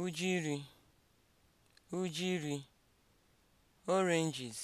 ujiri (ujiri) oranges